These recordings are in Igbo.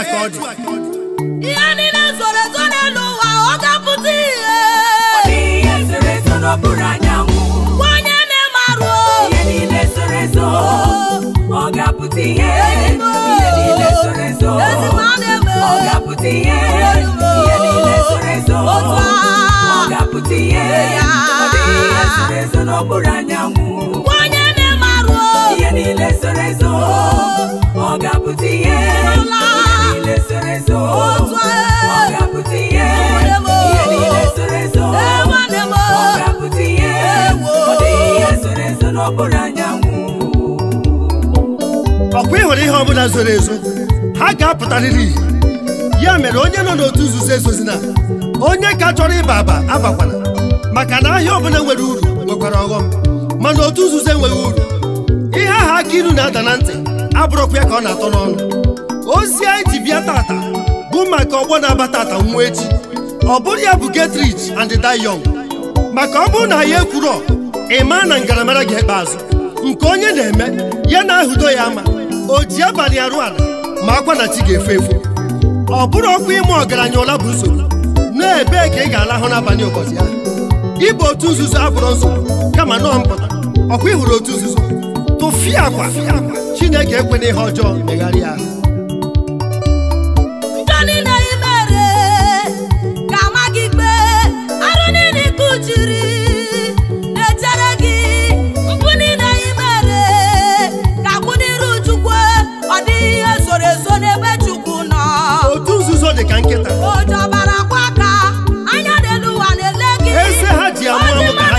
akọọdụ ihe niile zoro ezo n'ụwa ọ ga-apụta ihe ọ dị ihe zoro ezo n'okpuru anyanwụ gwa na-emarụ ihe niile zoro ezo ọ ga-apụta ihe ọ ga-apụta ihe ihe niile E. ọkwa e, e, ịhụrụ ihe ọbụla zoro ezo ha ga-apụtarịrị ya mere onye nọ n'otu nzuzo ezozina onye ka chọrọ ịba aba abakwana maka na ahịa ọbụla nwere uru nwekwara ọghọm mana otu nzuzo enweghị uru ihe aha aka ilu na-ada na ntị abụrụkwa ya ka ọ na-atọ n'ọnụ ozi anyị ji bịa tata bụ maka ọgbọ na-aba tata nwa echi ọ bụrụ ya bụ getrich and dayong maka ọ bụrụ na ya ekwuro ịma na ngaramara ga-ekpe azụ nke onye na-eme ya na ahụdo ya ama o ji abalị arụ ala ma akwa na chi ga-efe efu ọ bụrụ ọkwa ime ọgaranya ụla bụ nsogbu na-ebee ka ị ga-alahụ n'abalị ụbọchị ya ịbụ otu nzuzo abụrụ nsogbu kama nọọ mpụta ọkwa ị hụrụ otu nzuzo tụfịa akwa Chineke ekwena ihe ọjọọ megharịa ahụ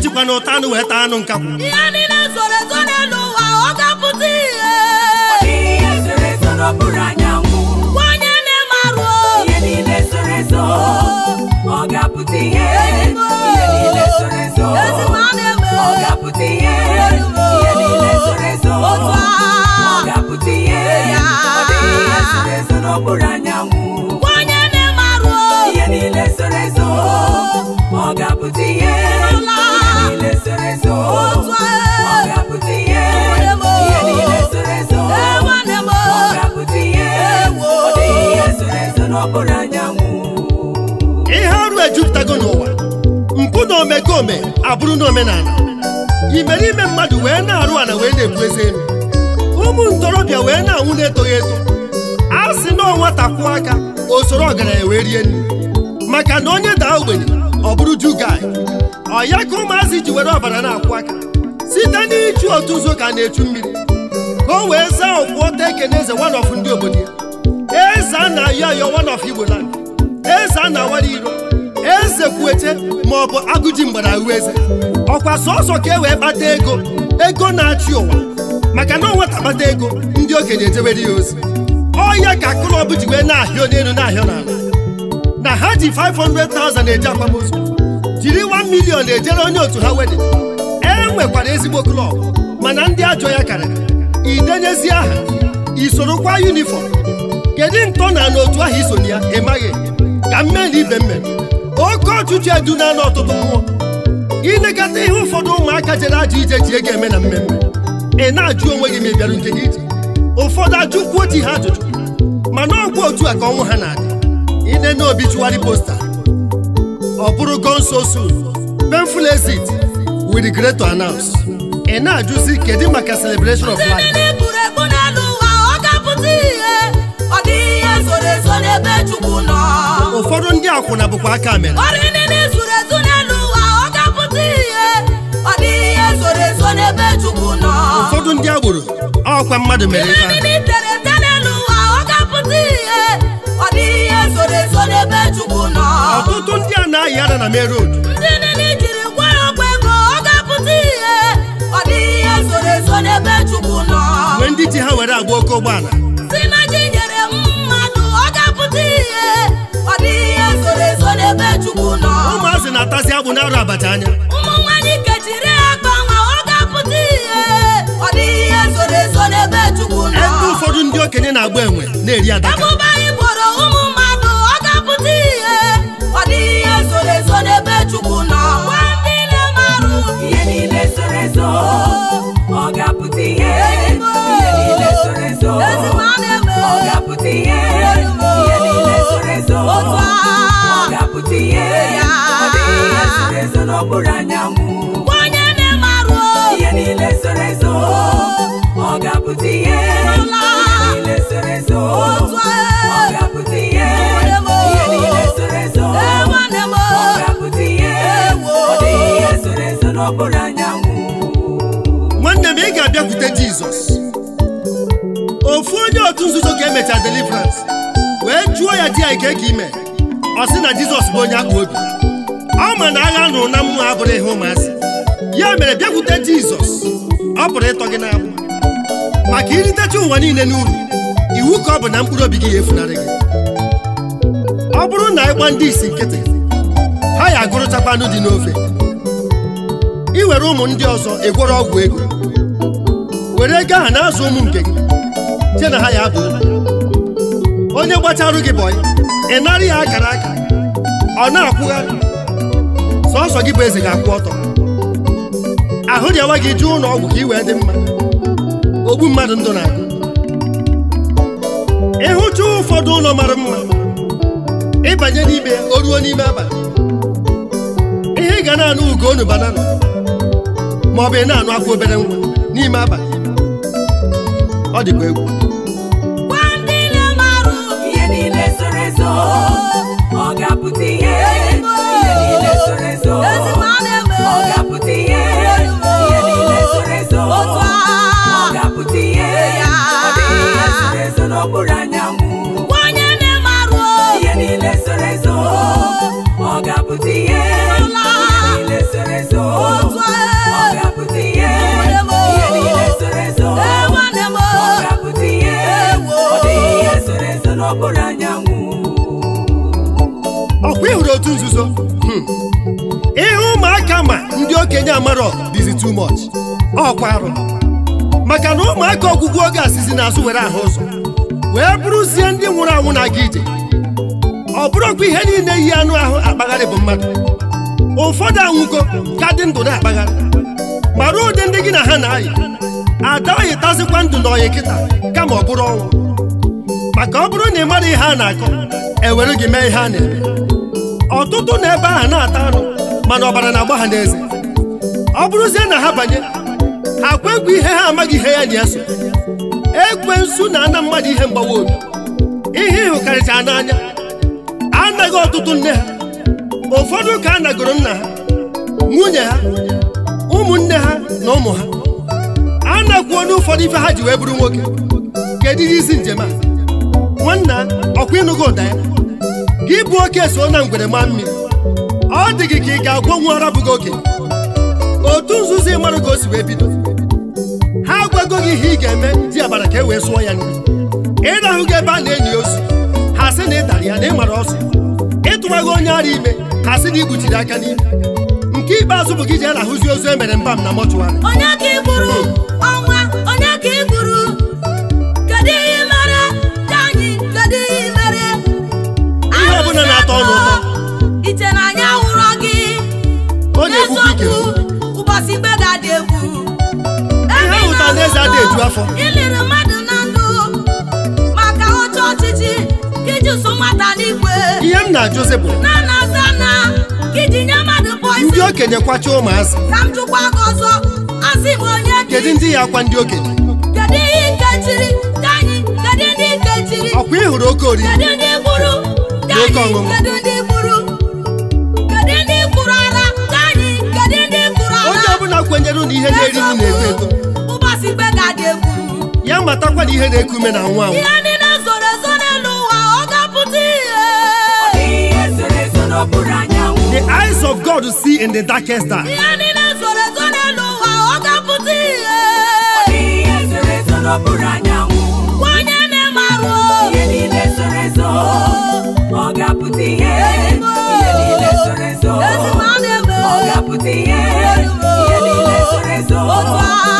ejikwa na ụta anụ wee anụ nka ihe niile zoro ezo n'elu ụwa ọ ga-apụta ihe nwanyị na ihe niile zoro ezo ọ ga-apụta ihe n'okpuru anyanwụ na-eme ihe niile zoro ezo ihe ome abụrụ n'omenala imerime mmadụ wee na-arụ ala wee na-ebu eze elu ụmụ ntorobịa wee na-anwụ na-etoghị eto a sị na ọnwata kwụọ aka o soro ọgaranya wee rie nri maka na onye daa ogbenye ọ bụrụ jugai ọ ya ka ụmụazị ji were ọbara na-akwụ aka site n'iji otu ụzọ ka na-echu mmiri ka o wee zaa ọkwụọta ekene eze wanọf ndị obodo ya eze a na-ayọ ayọ wanọf igbo land eze a na-awara iro eze kwueche ma ọ bụ agụji mgbara ahụ eze ọkwa sọsọ ka e wee kpata ego ego na-achị ụwa maka na ọnwata akpata ego ndị okenye ejewere ya ozi ọya ka klọb ji wee na-ahịa n'elu na-ahịa n'ala na ha ji 500,000 eje akwamozu jiri 1 million ejere onye otu ha wedin e nwekwara ezigbo klọb mana ndị ajọ ya karịrị idenyezi aha isorokwa yunifọm kedu ntọ na n'otu ahụ isonye ya ị maghị ka mmeri ibe mmeri oke ọchịchị edu na ọtụtụ mmụọ ilekọta ihe ụfọdụ ụmụaka jere ajọ ije ji ego eme na mmemme ị na-ajụ onwe gị ma ị bịara njem ije ụfọdụ ajụkwuo ji ha ajụjụ mana ọgwụ otu a ka ọnwụ ha na-adị ine na obi tụgharị posta ọ bụrụ go nso soon painful exit we ị na-ajụzi kedu maka celebration of akwụna bụkwa aka mere ọ dị ụfọdụ ndị agboro ọkwa mmadụ mere ife ọtụtụ ndị a na-ayị ara na merod ndị ọ ndị ji ha were agba oke ụgbọala ya bụ na-arụ anya ebe ụfọdụ ndị okenye na-agba enwe na-eri adaka ebube anyị ezo onye na ihe ezo ọ ga ihe ezo e. ọ ga ihe ihe ezo e, ọ ga ihe ọ dịghị ihe ezo anyanwụ nwanne m ị ga-abịakwute Jizọs ofu onye otu nzuzo ka emecha deliverance wee jụọ ya di ya ka ị ime, ọ sị na Jizọs bụ onye akpa obi ma na agha nụrụ na mmụọ abụrụ ihe ụmụasị ya mere bịakwute jizọs ọ pụrụ ịtọ gị n'agbụ maka iritecha ụwa niile n'uru iwu ka ọ bụ na mkpụrụ obi gị ya efunarị gị ọ bụrụ na ịgba ndị isi nkịtị ha ya agụrụchakwanụ anụ dị n'ofe ị were ụmụ ndị ọzọ egworo ọgwụ ego were ego ahụ na-azụ ụmụ nke gị je na ha ya abụ onye gbacharụ gị bọyị ị nara ya akara aka ọ na-akwụgharị sọsọ gị bụ eze ga-akwụ ọtọ ahụ dị awa gị jụụ ụlọọgwụ ka ị wee dị mma ogbu mmadụ ndụ na-agụ ịhụcha ụfọdụ ụlọ mara mma ịbanye n'ime o ruo n'ime abalị ihe ị ga na-anụ ugonu banana ma ọ bụ ị na-anụ akwụ obere nwa n'ime abalị ọ dịkwa egwu ndị na-amarụ ihe niile ezo ọ ga-apụta ihe ọkwa ịhụrụ otu nzuzo ihe ụmụaka ma ndị okenye amarọ dịzi too much ọkwa arụ maka na ụmụaka ọgwụgwụ oge asịzi n'azụ were ahụ ụzọ wee bụrụzie ndị nwụrụ anwụ na-aga ije ọ bụrụkwa ihe niile yi anụ ahụ akpagharị bụ mmadụ ụfọdụ anwụgo ka dị ndụ na-akpagharị ruo ụdị ndị gị na ha na-ayị ada oyi tazikwa ndụ na oyi kịta kama ọ bụrụ ọnwụ maka ọ bụrụ na ị mara ihe a na-akọ ewere gị mee ihe a na-eme ọtụtụ na ebe ahụ na-ata arụ mana ọbara na-agba ha n'eze ọ bụrụzie na ha banye ha kwekwa ihe ha amaghị ihe ya na ya so ekwensu na-ana mmadụ ihe mgbawa obi ihe ịhụkarịcha n'anya anaghị ọtụtụ nne ha ụfọdụ ka a nagoro nna ha nwunye ha ụmụnne ha na ụmụ ha a na-akwuo n'ụfọdụ ife ha ji wee bụrụ nwoke kedu ihe isi njem a nwanna ọkwa ịnụgo ụda ya gị bụ oke so na ngwere maa mmiri ọ dị gị ka ị ga-agwọ nwa ọra bụghị oge otu nzuzo ị ka o si wee bido ha agwago gị ihe ị ga-eme dị abara ka e wee sụọ ya nri ịrahụ gị ebe a na-enyi ozu ha sị na ị dara ya na ị mara ọsọ ịtụwaghị onye ara ime ha sị na ị aka n'ime nke ikpeazụ bụ gị ji arahụzi ozu e mere mba m na mọchụwarị onye hmm. ọnwa onye ihe ọbụla na-atọ ọnụ ụtọ ọhanaeze adị eju afọ iliri mmadụ ndụ maka ihe m na-ajụzi bụ na na nye mmadụ ndị okenye kwacha ụmụazị ka m kedu ndị ya akwa ndị okenye kedu ihe ọkwa ị hụrụ oke oriri kedu ndị kedu onye ọbụla kwenyere na ihe na na-eto eto ga-esikwe ga ya matakwa ihe na-eku ume na nwa ihe niile zoro ezo n'elu ụwa ọ ga-apụta ihe the eyes of God see in the darkest dark ihe niile zoro ezo n'elu ụwa ọ ga-apụta ihe ihe niile zoro ezo ọ ga-apụta ihe ihe niile zoro ezo ọ ga-apụta ihe ihe niile zoro ezo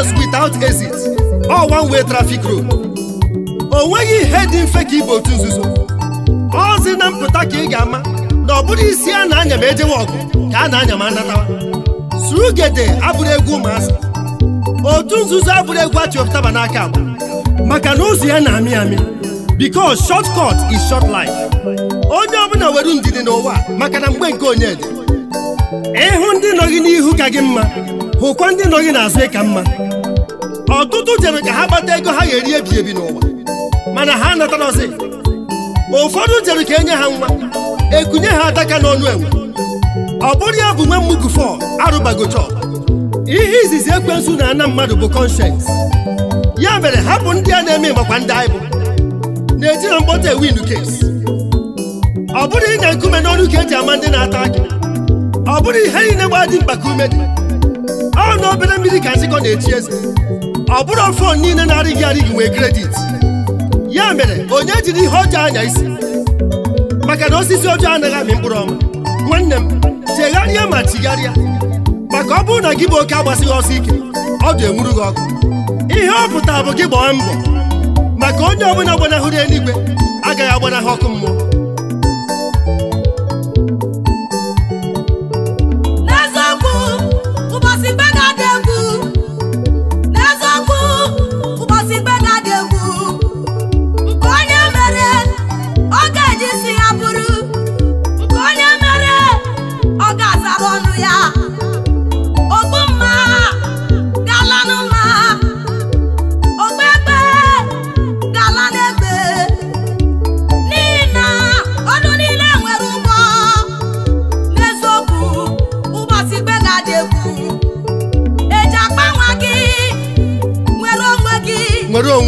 house without exit ọ one way traffic road o nweghị ihe dị mfe ka ibe otu nzuzo ozi na mpụta ka ị ga-ama na ọ bụrụ isi a na-anya ma ejewe ọgụ ka a na-anya ma anatawa surugede abụrụ egwu ụmụazị otu nzuzo abụrụ egwu achịpụtaba n'aka agba maka na ụzọ ya na-amị amị because short cut is short life onye ọbụla were ndidi n'ụwa maka na mgbe nke onye dị ịhụ ndị nọ gị n'ihu ka gị mma hụkwa ndị nọ gị n'azụ ịka mma ọtụtụ jere ka ha kpata ego ha ga-eri ebi ebi n'ụwa mana ha natarọzi ụfọdụ jere ka enye ha nwa ekunye ha ataka n'ọnụ enwe ọ bụrụ ya bụ nwe mmugu fọ arụbagochọ ihe izizi ekwensu na-ana mmadụ bụ kọnshens ya mere hapụ ndị a na-eme makwa ndị anyị bụ na-eji na mkpọta ewindu kes ọ bụrụ ịnya nkume n'ọnụ ka eji ama ndị na-ata aka ọ bụrụ ihe niile gbaa dị mkpa ka ume dị ọ na obere mmiri ka nzikọ na echi eze ọ bụrụ fon niile na-arịghị arịghị nwee kredit ya mere onye jiri ihe ọjọọ anya isi maka na osisi ọjọọ anaghị amị mkpụrụ ọma nwanne m chegharịa ma chigharịa maka ọ bụrụ na gị bụ oke agbasighị ọsọ ike ọ dị enwuru gị ọkụ ihe ọ pụtara bụ gị gbaa mbọ maka onye ọbụla gbanahụrụ eluigwe agaghị agbanahụ ọkụ mmụọ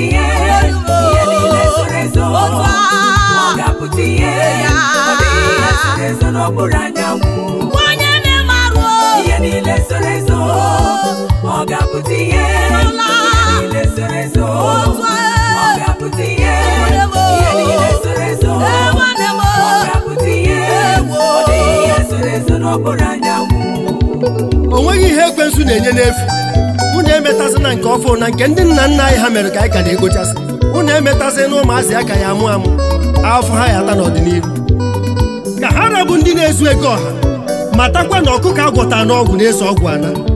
putiye iye nile sorezo ọga putiye ọdẹ iye sorezo n'okpuru anyanwụ onye ihe ekwensu na-enye n'efu emetazi na nke ọfụ na nke ndị nna nna anyị ha mere ka anyị ka na-egochasị unu emetazi na ụmụazị aka ya amụ amụ afọ ha ya ata n'ọdịnihu ka ha rabụ ndị na-ezu ego ọha matakwa na ọkụkọ agwọta n'ọgwụ na-eso ọgwụ ala.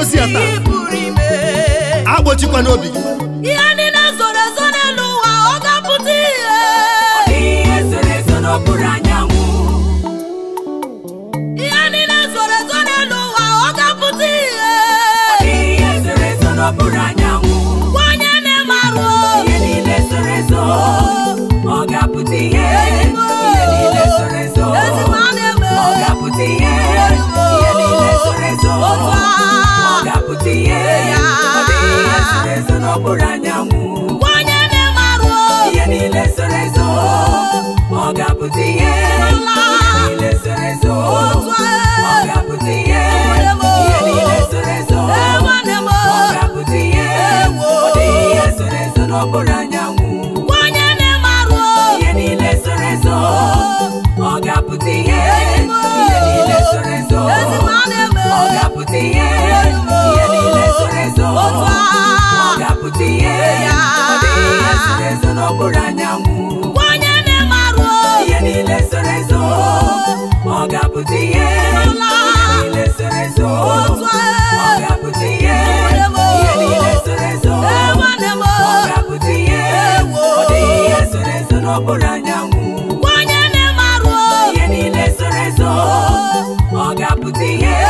ozi a taa agbochikwa n'obi gị ọ bụrụ anyanwụ onye na-emarụ ihe niile soro ezo ọ ga-apụta ihe niile soro ezo ọ ga-apụta ihe ihe niile soro ezo ọ ga-apụta ihe ọ dịghị ihe soro ezo na ọ bụrụ anyanwụ onye na-emarụ ihe niile soro ezo ọ ga-apụta ihe ọ bụrụ anyanwụ onye na-emarụ ihe niile soro ezo ọ ga-apụta ihe niile soro ọ ga-apụta ihe niile soro ezo onye na-emarụ ihe niile soro ezo ọ ga-apụta ihe